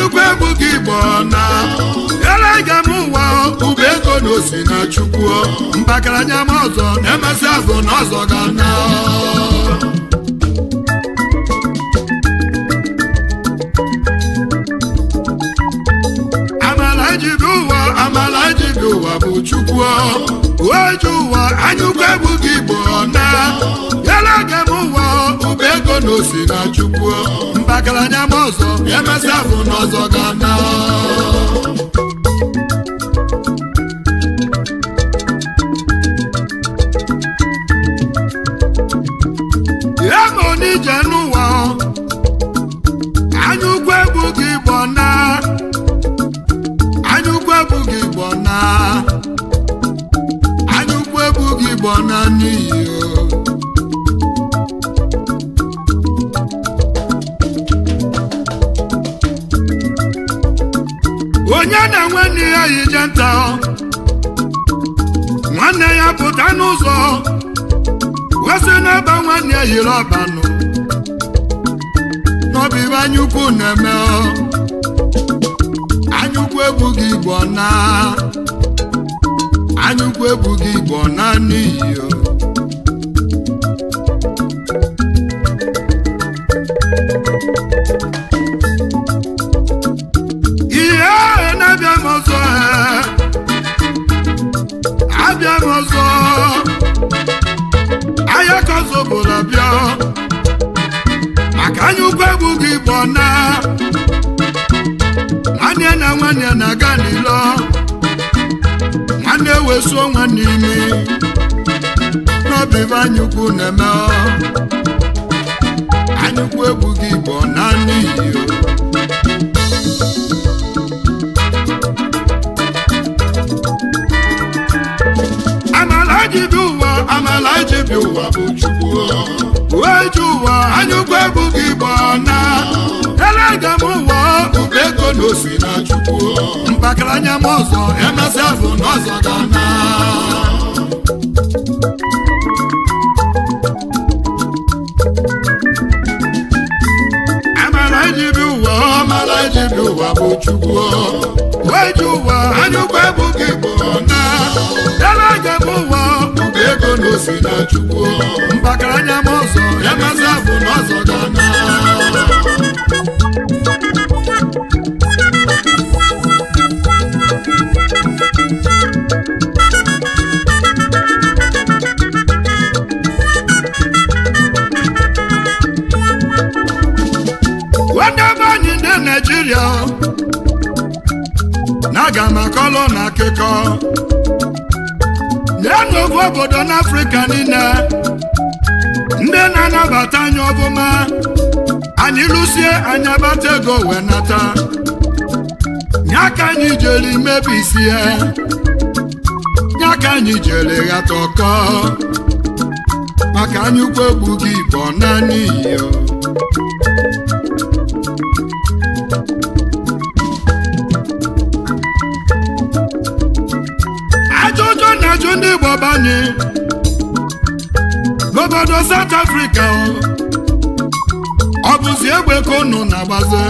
chukwu egwu gị bụ na elege m ụwa ụba ego na osi na chukwu mbakaranya m ọzọ na-emesi azụ na ọzọ ga na amala ejide ụwa amala ejide ụwa bụ chukwu oji ụwa anyụkwu egwu gị bụ na osi na chukwu mpakaranya ma ọzọ afọ n'ọzọ ga na onye na-enwe n'ihe ya yi je nta nwanne ya pụta n'ụzọ wesị n'ebe nwanne ya yiri ọbanụ n'ọbụ ibe anyaukwu na-eme anyaukwu ebughị igbo na anyaukwu ebughị igbo na n'iyi na-aga n'ilo nwanne ewesuo nwanne imi n'obi anyị na-eme egwu gị na n'iyi ụwa amala jibi ụwa bụ gị na ụwa ego na na chukwu mpakịrị anya m ọzọ emesịa afọ n'ọzọ ga-ana iji bi ụwa ọ mara iji bi ụwa bụ chukwu wee ji ụwa anyụkwa ebughị igbo na dara aga m ụwa bụ ego na na chukwu anya m ọzọ emesịa Naịjirịa na aga m akọlọ na akụkọ lee n'ogwu obodo n'Afrịka niile ndị na-anabata anyị ọbụma anyị lụsie anya bata ego wee nata nye aka anyị jere imebisie ya, aka anyị jere ghata ọkọ maka anyị ukwu egbughị igbo naanị iyo igbo banye n'obodo South Africa ọ bụzi egbe ka unu na-agbazi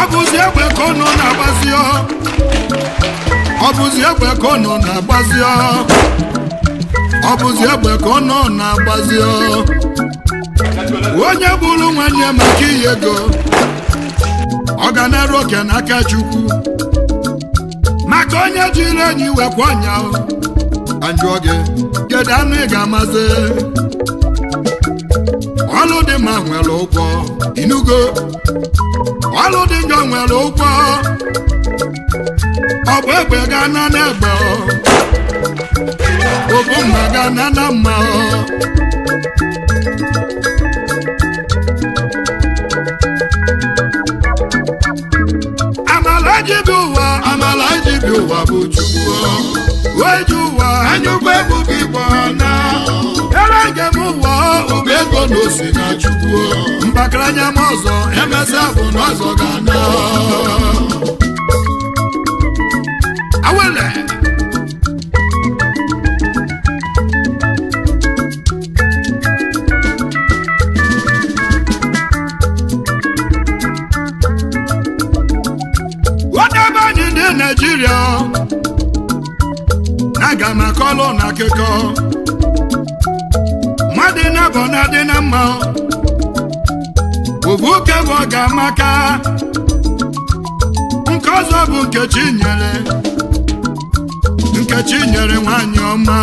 ọ bụzi egbe ka unu na-agbazi ọ bụzi egbe ka unu na-agbazi ọ bụzi egbe ka unu na-agbazi onye bụrụ nwanne maka ihe ego ọ ga na-eru oke n'aka Chukwu maka onye jiri enyi wekwa anya ajụọ gị kedu anụ ị ga-amazi ọlụ dị mma nwere ụgwọ inugo ọlụ dị njọ nwere ụgwọ ọ bụ egbe gaa na n'egbe obu mma gaa na na mma amala ji bụ dibịa ụwa bụ chukwu weju ụwa anyụkwa egwuregwu igbo na ere njem ụwa ụba ego na osi na chukwu mbakara anya m ọzọ emesịa bụ na ọzọ ga anọ nkekọ mmadụ nabọ na-adị na mma ovu ọ ga-amaka nke ọzọ bụ nkechi nyere nkechi nyere nwanyị ọma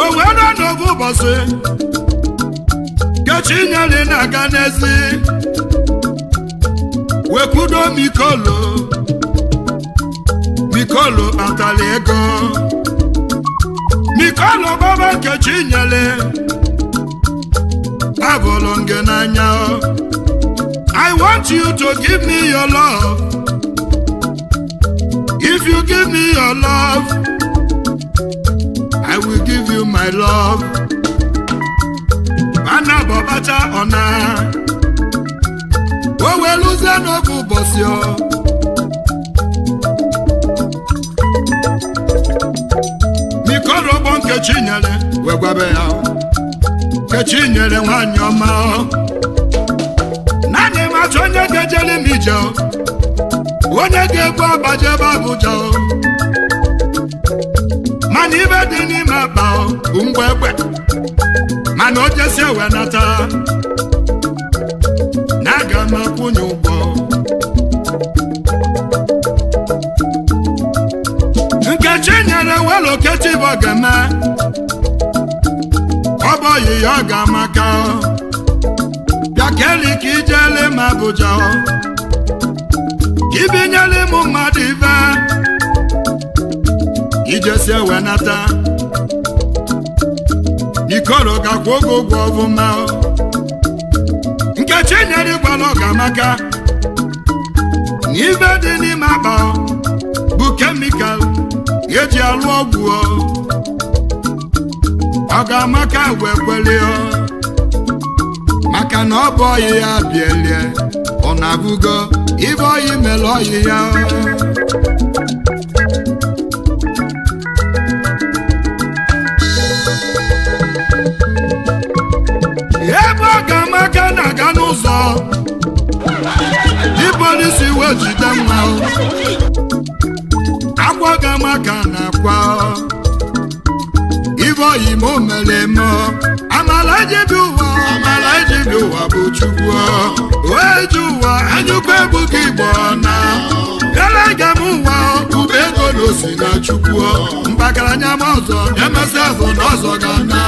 o wee ụbọchị nkechi nyere na-aga n'ezi wekwudo mikolo mikolo atala ego Nikolo Baba Nkechi nyele abụrụ nge n'anya I want you to give me your love if you give me your love I will give you my love mana bọbacha ọna o weluzie n'oge ụbọchị ọ Kechinyere wee gwabe ya Kechinyere nwanyị ọma naanị matụ onye ga-ejere m ije onye ga-egbu abaje ebe Abuja mana ibe dị n'ime akpa bụ ngwa egbe mana o jesi ewe nata na aga m akwụnye ụgwọ Nkechi na-ewelu Okechi bụ ogene ọ bụ oyi ya ọ keli ka ijele m Abuja ka ibinyela ịmụ mmadụ ibe ijesie wenata ikoro gakwa oge ụgwọ ọbụma nkechi nyere ịgwala ọgamaka na ibe dị n'ime akpa bụ kemikal eji alụ ọgwụ ọ ga amaka wee maka na ọ bụ ọyị ya bielie ọ na-abụgo ibe ọyị mere ọyị ya ebe ọ ga amaka na-aga n'ụzọ ibe onye si wee jide mma ejikwa ibe oyim mere eme amala ejibi ụwa amala ejibi ụwa bụ chukwu oeji ụwa anyụkwa ebuka igbo na elega m ụwa ube ego na osi na chukwu anya m ọzọ na-emesi azụ na ọzọ ga na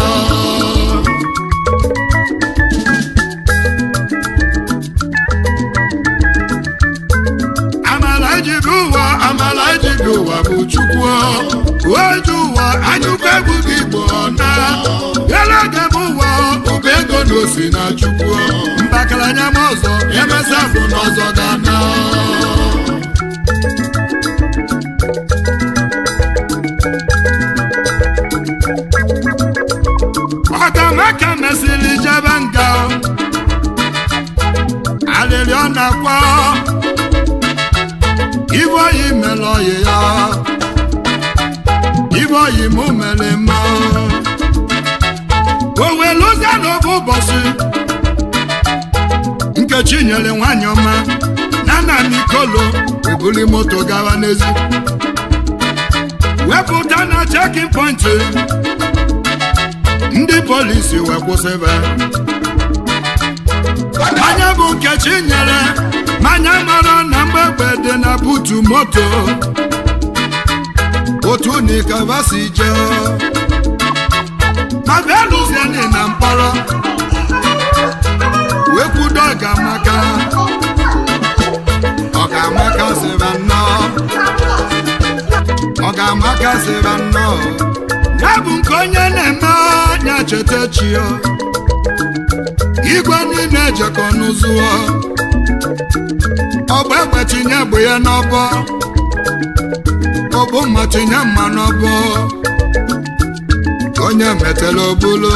ụwa bụ chukwu oju ụwa anyụkọ egwu gị bụ ọna elege m ụwa ụba ego na osi na chukwu mbakaranya m ọzọ emesa afụ n'ọzọ ga chinyere nwanyị ọma na nna kolo ebuli moto gawa n'ezi wepụta na chekin pọintị ndị polisi wee kwụsịba anya bụ nke chinyere manya mara na mgbegbe dị na butu moto otu nikavasi jee ma bịa na mkpọrọ okwudo ọgamaka ọgamaka sịrị nnọọ ọgamaka sịrị nnọọ ya bụ nke onye na-eme anya cheta ya igwe niile ejekọ n'ụzụọ ọgba egbe tinye bụ ya n'ọbọ ọbụ mma tinye mma n'ọbọ onye metela obulu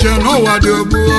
iche n'ụwa dị ogbuo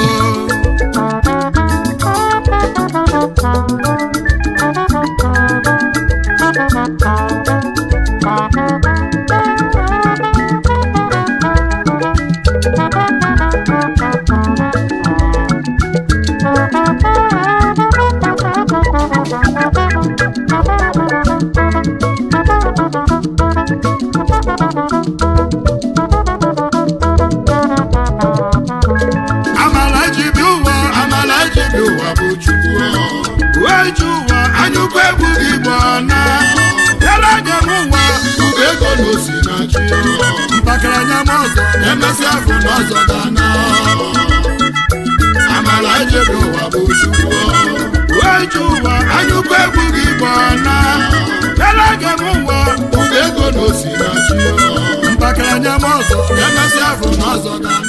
anya m ọzọ emesịa afọ n'ọzọ ga amara ijebe ụwa bụ chukwu weju ụwa anyụkọ egwu gị gba na ele ga m ụwa ụda ego na osi na chi anya m ọzọ afọ n'ọzọ ga